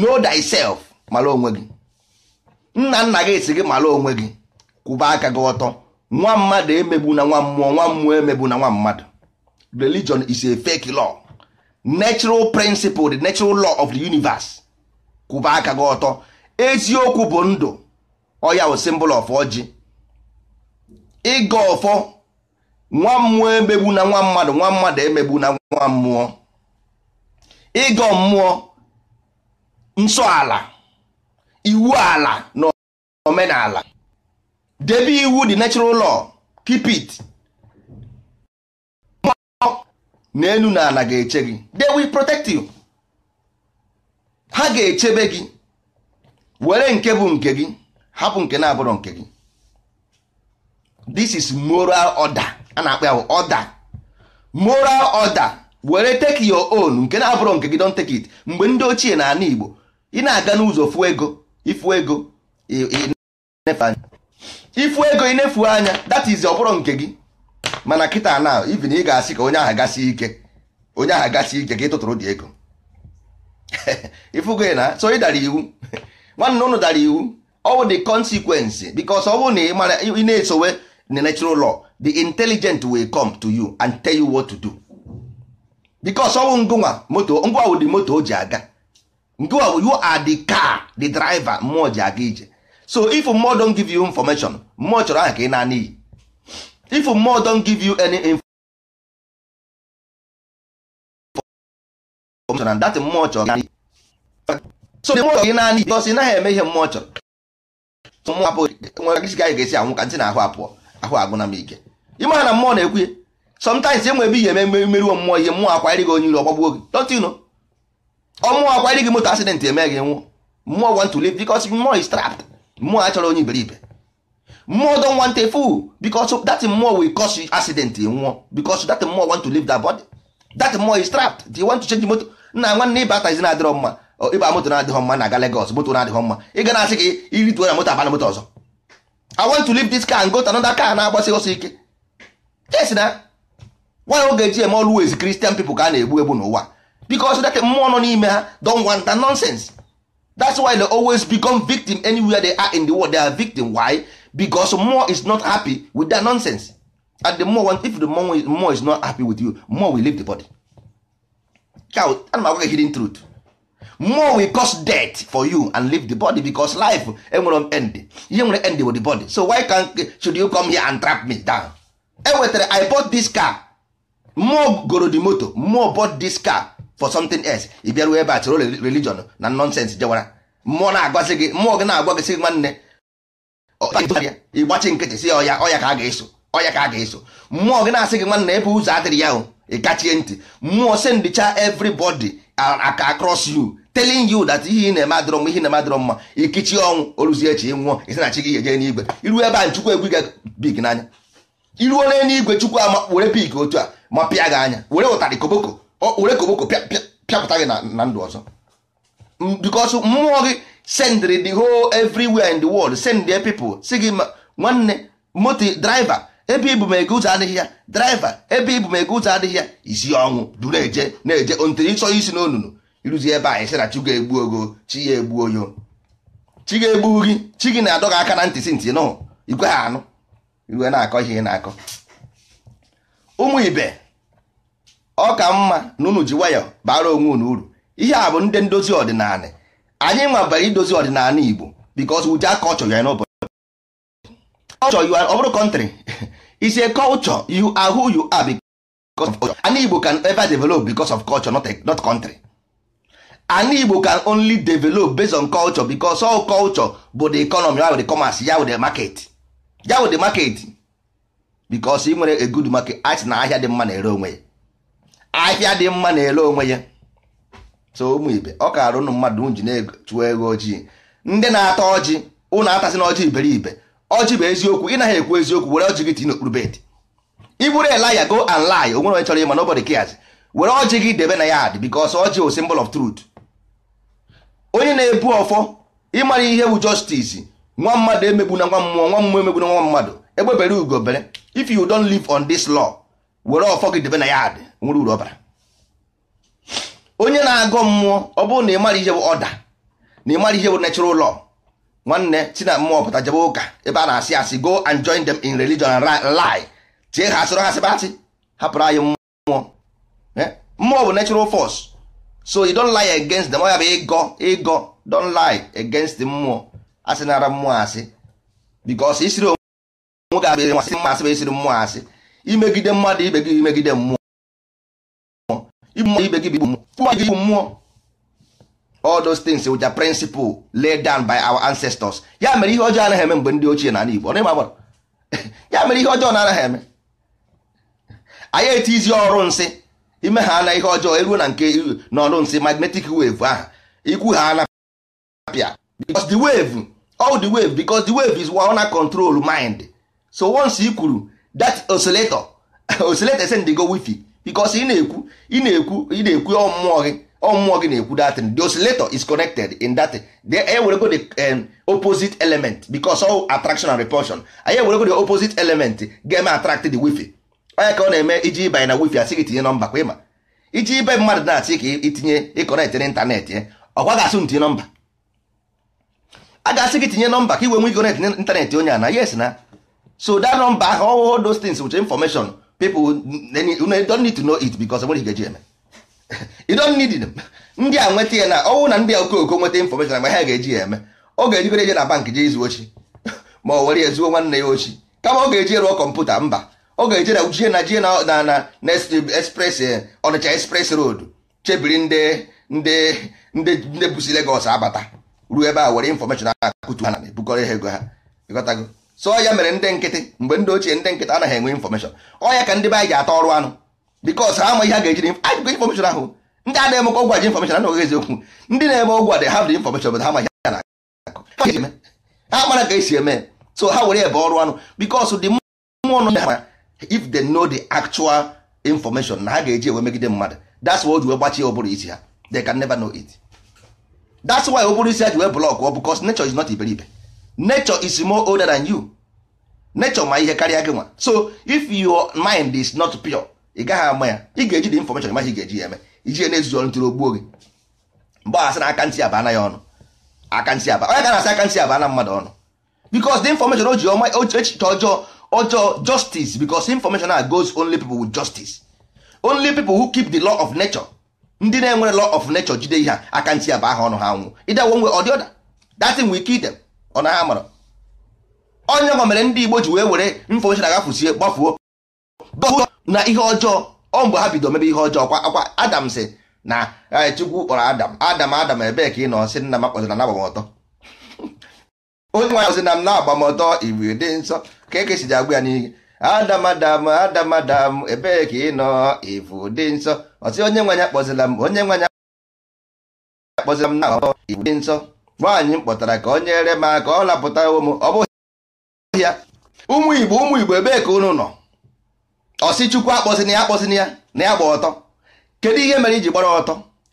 know thyself mara onwe gị nna nna gị si gị mara onwe gị kwụba aka gị ọtọ nwa mmadụ emegbu na nwa mmụọ nwa mmụọ emegbu na nwa mmadụ religion is a fake law natural principle the natural law of the universe kwụba aka gị ọtọ eziokwu bụ ndụ ọya wụ symbol of ọjị ịga ọfọ nwa mmụọ emegbu na nwa mmadụ nwa mmadụ emegbu na nwa mmụọ ịgọ mmụọ nsọ ala iwu ala na omenala debe iwu the natural law keep it n'elu na ala ga-eche gị they will protect you ha ga-echebe gị were nke bụ nke gị hapụ nke na-abụrụ nke gị this is moral order a na-akpa ya order moral order were take your own nke na-abụrụ nke gị don take it mgbe ndị ochie na ala Igbo ị na-aga n'ụzọ fụ ego ifu ego ifu ego inefu anya that is oburu nke gị mana kịta na ivin ị ga-asị ka onye aha gasi ike onye aha gasi ike ka ị tụtụrụ dị ego ifugo na so ị dara iwu nwanne ụnụ dara iwu ọ bụ the consequence because ọ bụ na ị mara ị na-esowe the natural law the intelligent will come to you and tell you what to do because ọ bụ ngụnwa moto ngwa wụ the moto o ji aga ngụwa wụ you are the car the driver mmụọ ji aga ije so if mmụọ don give you information mmụọ chọrọ aha ka ị na-ana if mmụọ don give you any information and that mmụọ chọrọ so the mmụọ naanị bikos ị naghị eme ihe mmụọ chọrọ mmụọ apụ nwere gị ga-esi anwụ ka ntị na ahụ apụọ ahụ na m ike ịma na mmụọ na-ekwu sometimes enwe ebe ihe eme meriwo mmụọ ihe mmụọ akwanyere gị onye iro ọgbagbuo gị dọtino ọmmụọ akwanyere gị moto accident eme gị nwụ mmụọ want to mmụọ is mmụọ achọrọ onye iberibe mmụọ don want a fool because that mmụọ will cause you accident nwụọ because that mmụọ want to leave that body that mmụọ is trapped they want to change motor nna nwanne ịba atazi na-adịrọ mma ịba moto na-adịghọ mma na-aga Lagos moto na-adịghọ mma ị ga na-asị gị irituo na moto abana moto ọzọ I want to leave this car and go to another car na-agbasi ọsọ ike yes na nwa oge eji eme always Christian people ka a na-egbu egbu n'ụwa because that mmụọ nọ n'ime ha don wanta that nonsense that's why they always become victim anywhere they are in the world they are victim why because more is not happy with that nonsense and the more if the more, more is not happy with you more will leave the body cow ana m hidden truth more will cause death for you and leave the body because life enwere eh, end ihe nwere end with the body so why can should you come here and trap me down enwetara eh, eh, i bought this car more goro the moto more bought this car for something else ị bịaruo ebe a chọrọ religion na nonsense jewara mmụọ na-agwazi gị mmụọ gị na-agwa gị sị nwanne ịgbachi nkịtị si ọya ọya ka a ga-eso ọya ka a ga-eso mmụọ gị na-asị gị nwanna ebe ụzọ adịrị ya ị kachie ntị mmụọ sendicha everybody aka across you telling you that ihe ị na-eme adịrọ mma ihe na-emadịrọ mma ikichi ọnwụ oruzie echi nwụọ isi na gị ga-eje n'igwe iru ebe a chukwu egwu gị big n'anya iruo igwe chukwu ama were pik otu a ma pịa gị anya were ụtarị koboko were koboko pịapụta gị na ndụ ọzọ bikọsụ mmụọ gị send the whole everywhere in the world send their people si gị nwanne moto draiva ebe ibu ma ege ụzọ adịghị ya draiva ebe ibu ma ege ụzọ adịghị ya isi ọnwụ du na-eje na-eje ntiri ịchọ isi n'onunu ịrụzi ebe anyị sị na chi ga-egbu ogo chi ya egbu oyo chi ga-egbu gị chi gị na-adọ gị aka na ntị si ntị nọ igwe ha anụ iwe na-akọ ihe na-akọ ụmụ ibe ọ ka mma na unu ji nwayọ bara onwe unu uru ihe a bụ ndị ndozi ọdịnala anyị nwabara idozi ọdịnala Igbo because we are culture you are nobody. culture you are ọ bụrụ country is a culture you are who you are because of culture. An Igbo can ever develop because of culture not, a, not country. An Igbo can only develop based on culture because all culture bụ the economy ya wụ the commerce ya wụ the market ya wụ the market because ị nwere a good market art na ahịa dị mma na-ere onwe ya ahịa dị mma na-ere onwe ya so ụmụ ibe ọ kaara ụnụ mmadụ unu ji na-chụọ ego ojii ndị na-ata ọjị ụnụ atasị n'ọjị iberiibe iberibe ọjị bụ eziokwu ị naghị ekwu eziokwu were ọjị gị tinye n'okpuru bed iburu elaya go and lie onwere onye chọrọ ịma nobody cares were ọjị gị debe na yad because ọjị bụ simbol of trut. onye na-ebu ọfọ ịmara ihe bụ justice nwa mmadụ emegbu na nwa mmụọ nwa mmụọ emegbu na nwa mmadụ egbebere ugo bere if you don't live on this law were ọfọ gị debe na yard nwere uru ọbara onye na-agọ mmụọ ọ bụrụ na ị mara ihe bụ ọda na ị ihe bụ natural law nwanne si na mmụọ pụta jebe ụka ebe a na-asị asị go and join them in religion and lie tie ha asịrị ha sịba asị hapụrụ anyị mmụọ eh? mmụọ bụ natural force so you don't lie against them ya bụ ịgọ ịgọ don't lie against mmụọ asị nara mmụọ asị because isiri onwe gị abịa asị mma asị bụ isiri mmụọ asị imegide mmadụ ibe gị imegide mmụọ igbu ibe gị bụ igbu mmụọ gị mmụọ all those things which are principle laid down by our ancestors ya mere ihe ọjọọ anaghị eme mgbe ndị ochie na ala Igbo ya mere ihe ọjọọ na anaghị eme anyị izi ọrụ nsị ime ha na ihe ọjọọ eruo na nke n'ọrụ nsị magnetic wave ahụ ikwu ha anapịa because the wave all the wave because the wave is one control mind so once i kwuru that oscillator oscillator send go wifi bikos ị na-ekwu ị na-ekwu ị na-ekwu ọmụọ gị ọmụọ gị na-ekwu datin the is connected in that e werego the um, opposite element bicos all attraction and repulsion anyị ewerego the opposite element ga-eme attract the wifi onye ka ọ na-eme iji ịbanye na wifi asị gị tinye nọmba kwa ịma iji ibe mmadụ na-asị ka itinye ịkọnetị eh, n'ịntanetị ọkwa ga-asụ ntinye nọmba a ga-asị gị tinye nọmba ka iwe nwe ịkọnetị n'ịntanetị onye a na yes na so that nọmba ahụ all those things with information people don't need to know it because onwere ga-eji eme you don't need them ndị a nweta ya na ọnwụ na ndị a okooko nweta information ma ha ga-eji ya eme ọ ga-ejigoro eje na bank jee izu ochi ma ọ were ya zuo nwanne ya ochi kama ọ ga-eji rụọ kọmputa mba ọ ga eji na jie na jie na na express eh, ọnịcha express road chebiri ndị ndị ndị ndị busi Legos abata ruo ebe a were information a kụtu ha na ebukọrọ ha ego ha ịghọtago so ya mere ndị nkịtị mgbe ndị ochie ndị nkịtị anaghị enwe infọmeshọn ọya ka ndị be anyị ata ọrụ anụ bikos ha ihe ga-eji ajụkọ infọmeshọn ahụ ndị a na-eme ọgwụ aji infọmeshọn anaghị eziokwu ndị na-eme ọgwụ a dị ha dị infọmeshọn bụ ha ma a na ha mara ka esi eme so ha were ebe ọrụ anụ bikos dị mmụọ nọ ha if they know the actual information na ha ga-eji enwe megide mmadụ that's ha they can never know it ụbụrụ isi ji wee blọkụ ọ ji iberibe nature is more older than you nature ma ihe karịa gị nwa so if your mind is not pure ị gaghị ama ya ị ga-eji the information ma ị ga-eji ya eme iji ya na ọrụ ntụrụ ogbuo gị mgbe a sị na aka ntị abana ya ọnụ aka ntị aba onye ga-asị aka aba abana mmadụ ọnụ because the information o ji ọma echiche ọjọọ ọjọọ justice because information a goes only people with justice only people who keep the law of nature ndị na-enwere law of nature jide ihe a aka ntị aba aha ọnụ ha nwụ ịdawo nwe ọdịọda that thing will kill them ọ na ha onye nwa mere ndị Igbo ji wee were mfe ochie agafusie gbafuo gbafuo na ihe ọjọọ ọ mgbe ha bido mebe ihe ọjọọ kwa akwa Adam sị na e, Chukwu kpọrọ Adam Adam Adam ebee ka ị nọ sị nna m akpọzina na agbamọtọ onye nwanyị ya na m na-agbamọtọ igwe dị nsọ ka eke si ji agwa ya n'ihe Adam Adam Adam Adam ebee ka ị nọ ivu dị nsọ ọsị onye nwanyị akpọzila m onye nwanyị akpọzila m na agbamọtọ dị nsọ nwaanyị m kpọtara ka o nyere m aka ọ lapụta ụmụ ọ bụghị ya ụmụ igbo ụmụ igbo ebee ka unu nọ ọsị chukwu akpọsịna ya akpọsịna ya na ya gba ọtọ kedu ihe mere iji gbara ọtọ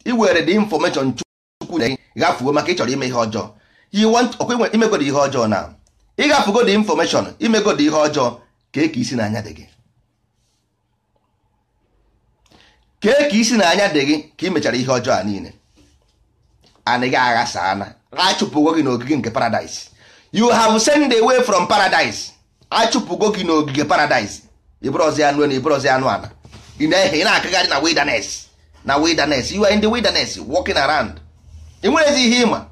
iwere dị infọmeshọn chukwu na gafuo maka ịchọrọ ime ihe ọjọọ imegodi ihe ọjọọ na ịgafugo dị infọmeshọn imegodi ihe ọjọọ kee ka isi n'anya dị gị kee ka isi n'anya dị gị ka imechara ihe ọjọọ a niile anaghị aghasa ana achụpụgo gị n'ogige nke paradise you have sent away from paradise achụpụgo gị n'ogige paradise ibrozi anụ na ibrozi anụ ana ị na-ehe ị na-akagharị na wilderness na wilderness you are in the wilderness walking around enwerezi ihe ịma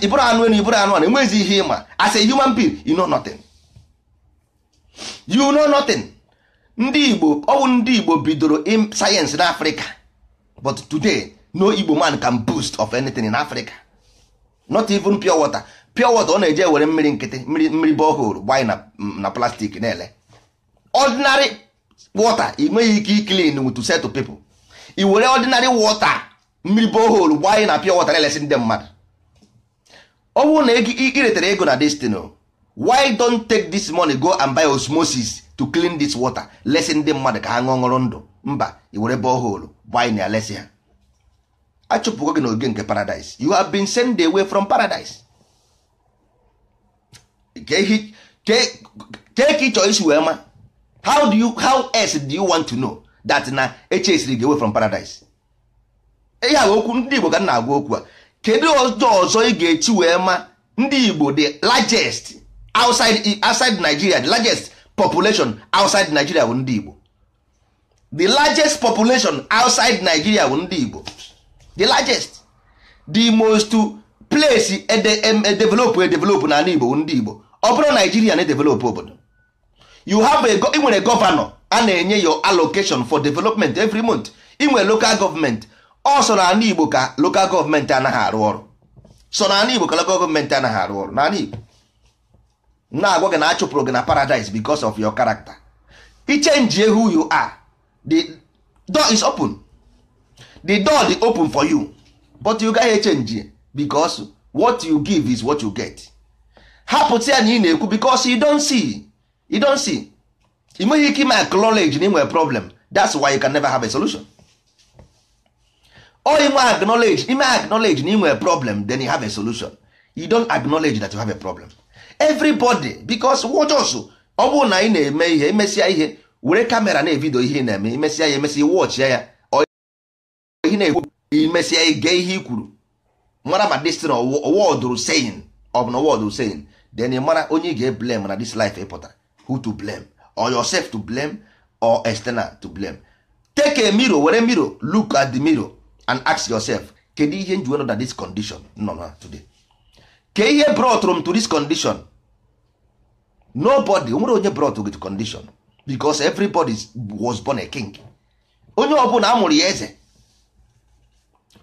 ịbụrụ anụ na ịbụrụ anụ ana enwerezi ihe ịma as a human being you know nothing you know nothing ndị Igbo ọ bụ ndị Igbo bidoro sayensị n'Africa but today no igbo man can boost of anything in africa not even pure water pure water ọ na-eje were mmiri nkịtị mmiri mmiri borehole gbanye na na plastic na-ele ordinary water ị nweghị ike clean with to set to i were ordinary water mmiri borehole gbanye na pure water na-elesi ndị mmadụ ọ bụrụ na iretere ego na destino why don take this money go and buy osmosis to clean this water lesi ndị mmadụ ka ha ṅụọ ṅụrụ ndụ mba i were borehole gbanye na ya ha achụpụgo gị n'oge nke paradise you have been sent away from paradise kee ka ịchọ isi wee ma how do you how else do you want to know that na echesiri gị away from paradise ihe a okwu ndị Igbo ka na-agwa okwu a kedu ọjọọ ọzọ ị ga-echi wee ma ndị Igbo the largest outside outside Nigeria the largest population outside Nigeria bụ ndị Igbo the largest population outside Nigeria bụ ndị Igbo the largest the most place edevelopụ e edevelopụ n'ala Igbo ndị Igbo ọ bụrụ Naijiria na-edevelopụ obodo you have a nwere gọvanọ a na-enye your allocation for development every month inwe local government. ọ so n'ala Igbo ka local government anaghị arụ ọrụ so n'ala Igbo ka local government anaghị arụ ọrụ n'ala Igbo na-agwa gị na achụpụrụ gị na paradise because of your character i change who you are the door is open the door dey open for you but you gaghị echenji because what you give is what you get hapụta ya na ị na-ekwu because you don't see you don't see ị nweghị ike ime acknowledge na ị nwere problem that's why you can never have a solution or ị nwe acknowledge ime acknowledge na ị nwere problem then you have a solution you don acknowledge that you have a problem everybody because wojos ọ bụrụ na ị na-eme ihe imesịa ihe were kamera na-evidio ihe ị na-eme imesịa ya emesịa iwọchịa ya ihe na-ekwu imesịa ige ihe i kwuru mara ma destin wọdụrụ seyin ọ bụ na wọdụrụ seyin den ị mara onye ị ga-eblem na this life ịpụtara who to blame or yourself to blame or external to blame take a mirror were mirror look at the mirror and ask yourself kedu ihe nji nọ na this condition nọ na today ke ihe brought m to this condition nobody nwere onye brought gị to condition because everybody was born a king onye ọbụla amụrụ ya eze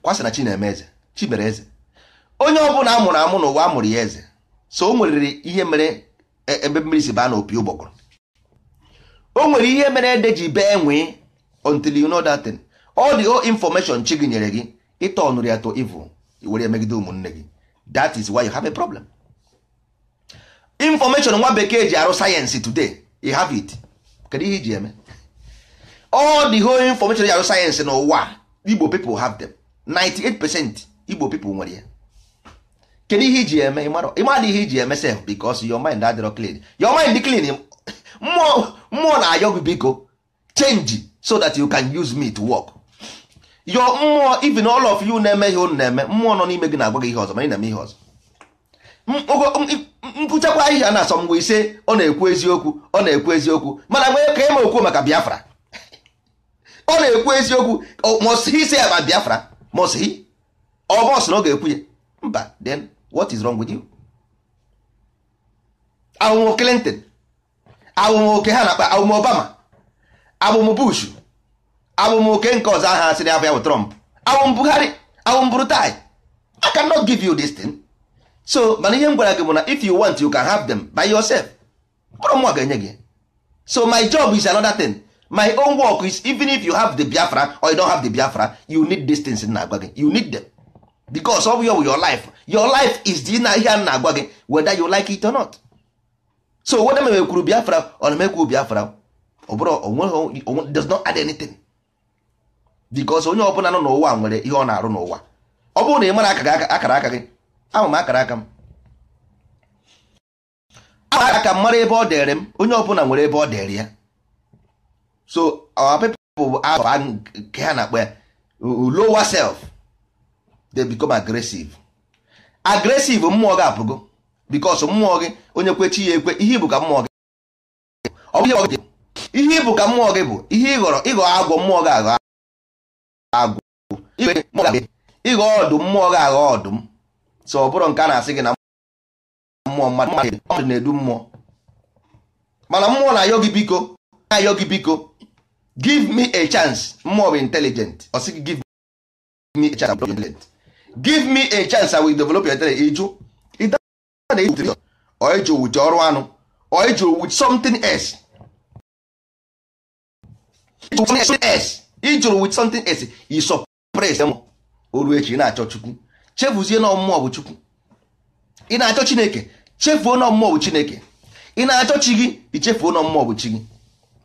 kwasị na chi eme eze mere eze onye ọbụla mụrụ amụ n'ụwa amụrụ ya eze so o nwere ihe mere e, ebe mmiri si baa n'opi ụgbọgụrụ o nwere ihe mere ede ji bee nwee until you know that thing all the old information chi gị nyere gị ịtọnụrụ ya to evil were megide ụmụnne gị that is why you have a problem information nwa bekee ji arụ sayensị today you have it kedu ihe iji eme all the whole information ji arụ sayensị n'ụwa igbo people have them 98% igbo people nwere ya kedu ihe iji eme ịmadị ihe iji eme sef because your mind adịrọ clean your mind dị clean mmụọ na-ayọ gị biko change so that you can use me to work your mmụọ even all of you na-eme ihe unu na-eme mmụọ nọ n'ime gị na-agwa gị ihe ọzọ ma ị na-eme ihe ọzọ mkpụchakwa ahịhịa na-asọ mgbe ise ọ na-ekwu eziokwu ọ na-ekwu eziokwu mana mgbe ka ị ma okwu maka Biafra ọ na-ekwu eziokwu must ise ya about Biafra must he ọ ọsọ na ọ ga-ekwu ya mba then what is wrong with you awụm Clinton awụm oke ha na-akpa awụm Obama awụm Bush awụm oke nke ọzọ aha asịrị abịa bụ Trump awụm Buhari awụm Brutai I cannot give you this thing so mana ihe m gwara gị bụ na if you want you can have them by yourself mkpụrụ mụ ga-enye gị so my job is another thing my own work is even if you have the biafra or you don't have the biafra you need these things na gị you need them because of your, your life your life is the na ihe a na-agwa gị whether you like it or not so whether m ekwuru biafra or m ekwu biafra ọ bụrụ does not add anything because onye ọbụla nọ n'ụwa nwere ihe ọ na-arụ n'ụwa ọ bụrụ na ị mara akara aka gị ama m akara aka m aka m mara ebe ọ dịrị m onye ọbụla nwere ebe ọ dịrị ya so our people bụ afa nke ha na-akpọ ya lower self they become aggressive aggressive mmụọ gị apụgo bikos mmụọ gị onye kwechi ya ekwe ihe bụ ka mmụọ gị ihe bụ ka mmụọ gị bụ ihe ịghọrọ ịghọ agwọ mmụọ gị aghọ agwọ ịghọ ọdụm mmụọ gị aghọ ọdụm so ọ nke a na-asị gị na mmụọ mmadụ na-edu mmụọ mana mmụọ na-ayọ gị biko gị biko give me a chance more of intelligent ọ sị gị give me a chance intelligent give me a chance i will develop your intelligence ịjụ na ịjụ ọ ịjụ with ọrụ anụ ọ ịjụ with something else ịjụrụ with something else you suppress them oru echi ị na-achọ chukwu chefuzie na mmụọ bụ chukwu ị na-achọ chineke chefuo na mmụọ bụ chineke ị na-achọ chi gị ichefuo na mmụọ bụ chi gị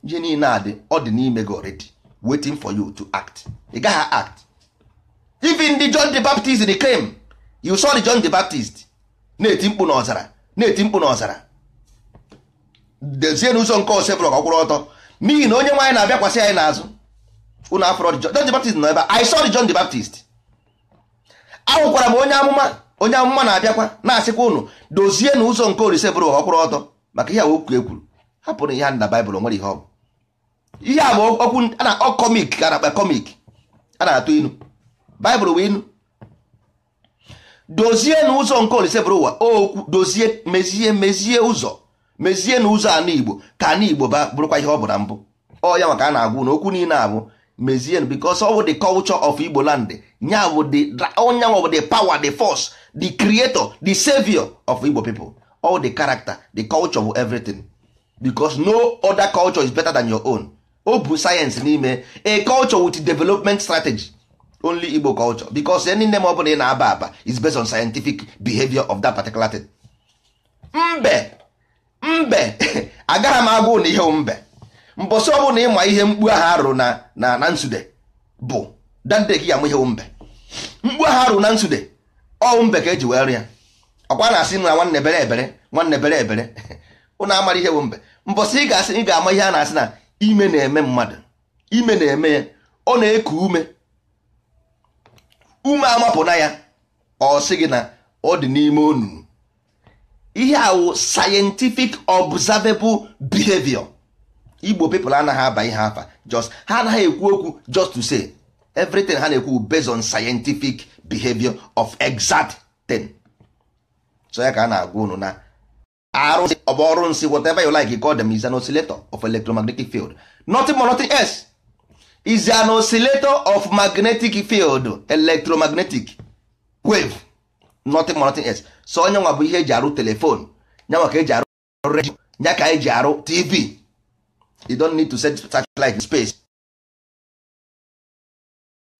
ihe niile a dị ọ dị n'ime gị already wetin for you to act ị gaghị act even the John the Baptist the came you saw the John the Baptist na-eti mkpu n'ọzara na-eti mkpu n'ọzara dezie n'ụzọ nke ọsọ Osebrok ọkwụrụ ọtọ n'ihi na onye nwaanyị na-abịakwasị anyị n'azụ unu afọrọ John the Baptist nọ ebe a I saw the John the Baptist ahụkwara m onye amụma onye amụma na-abịakwa na-asịkwa ụnụ dozie n'ụzọ nke Osebrok ọkwụrụ ọtọ maka ihe a okwu ekwuru hapụrụ ihe a na Baịbụl nwere ihe ọ bụ ihe a bụ okwu a na-akpọ komik ka na-akpa komik a na-atụ inu baịbụl bụ inu dozie n'ụzọ nke olise bụrụ ụwa okwu dozie mezie mezie ụzọ mezie n'ụzọ anụ igbo ka anụ igbo ba bụrụkwa ihe ọ bụ na mbụ ọ ya maka a na-agwụ na okwu niile abụ mezie because ọ bụ the culture of igbo land nya bụ the onye bụ the power the force the creator the savior of igbo people all the character the culture bụ everything because no other culture is better than your own o bu sayensị n'ime a culture with development strategy only igbo culture because any name ọ bụla ị na-aba aba is based on scientific behavior of that particular thing. mbe mbe agaghị m agwụ na ihe mbe mbọsị ọ na ịma ihe mkpu aha arụ na na nsude bụ dande gị amụ ihe mbe mkpu aha arụ na nsude ọ mbe ka eji wee rịa ọkwa na-asị m na nwanne bere ebere nwanne bere ebere ụnụ amara ihe mbe mbọsị ị ga-asị ị ga-ama ihe a na-asị na ime na-eme mmadụ ime na-eme ya ọ na-eku ume ume amapụna ya ọ sị gị na ọ dị n'ime onu ihe awụ scientific observable behavior igbo people anaghị aba ihe afa just ha anaghị ekwu okwu just to say everything ha na-ekwu based on scientific behavior of exact so ya ka a na-agwa unu na arụsị ọ bụ ọrụ nsị whatever you like you call them is an oscillator of electromagnetic field nothing more nothing else is an oscillator of magnetic field electromagnetic wave nothing more nothing else so onye nwa bụ ihe eji arụ telefon nyanwa ka eji arụ redio nya ka eji arụ tv you don't need to set satellite in space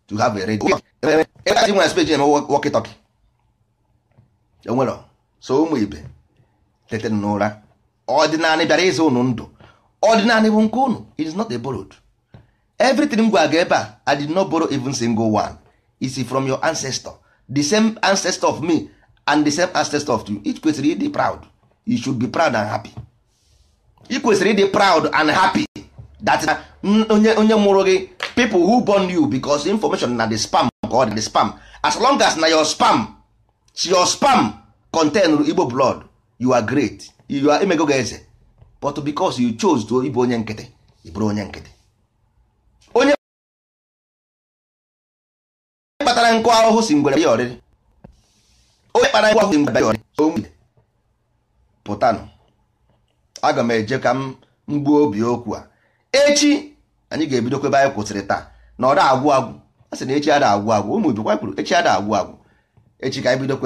to have a radio ebe a ji nwere space na-eme walkie enwere so ụmụ ibe tetere n'ụra ọdịnala bịara ịzụ ụnụ ndụ ọdịnala bụ nke ụnụ is not a borrowed everything m gwa gị ebe a i did not borrow even single one is from your ancestor the same ancestor of me and the same ancestor of you it kwesịrị ịdị proud you should be proud and happy if kwesịrị ịdị proud and happy that onye onye mụrụ gị people who born you because information na the spam ka ọ dị spam as long as na your spam your spam contain Igbo blood you are great you are emego eze but because you chose to ịbụ onye nkịtị ị bụrụ onye nkịtị onye kpatara nkụ ahụhụ si ngwere ya ọrịrị onye kpatara nkụ ahụhụ si ngwere ya ọrịrị pụtanụ aga m eje ka m gbuo obi okwu a echi anyị ga-ebido kwebe anyị kwụsịrị taa na ọ da agwụ agwụ a sị na echi ada agwụ agwụ ụmụ ibe kwuru echi ada agwụ agwụ echi ka anyị bido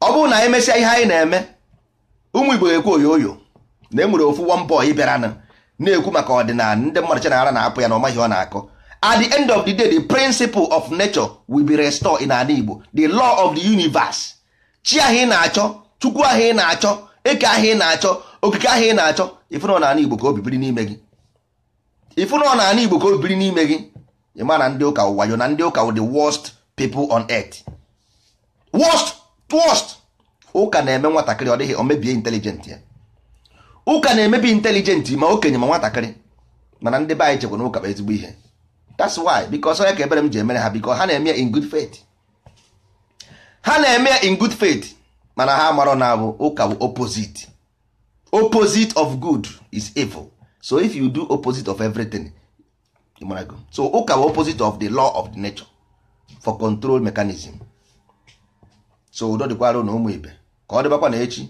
ọ bụrụ na anyị mesịa ihe anyị na-eme ụmụ igbo ekwe oyoyo na enwere ofu one boy bịara na-ekwu maka ọdịnala ndị mmadụ chanara na-apụ ya na ọmaghị ọ na-akọ at the end of the day the principle of nature will be restored in ala igbo the law of the universe chi ahụ ị na-achọ chukwu ahụ ị na-achọ eke ahụ ị na-achọ okike ahụ ị na-achọ ifunọ na igbo ka o bibiri n'ime gị ifunọ na igbo ka o bibiri n'ime gị ịma na ndị ụka ụwayo na ndị ụka the worst people on earth worst First, ụka na-eme nwatakịrị ọ dịghị omebie mebie intelijenti ya ụka na-emebi intelijenti ma okenye ma nwatakịrị mana ndị be anyị chekwa na ụka bụ ezigbo ihe that's why because onye ka ebere m ji emere ha because ha na-eme in good faith ha na-eme in good faith mana ha marọ na abụ ụka bụ opposite opposite of good is evil so if you do opposite of everything so ụka bụ opposite of the law of the nature for control mechanism so udo dịkwara na ụmụ ibe ka ọ dịbakwa na echi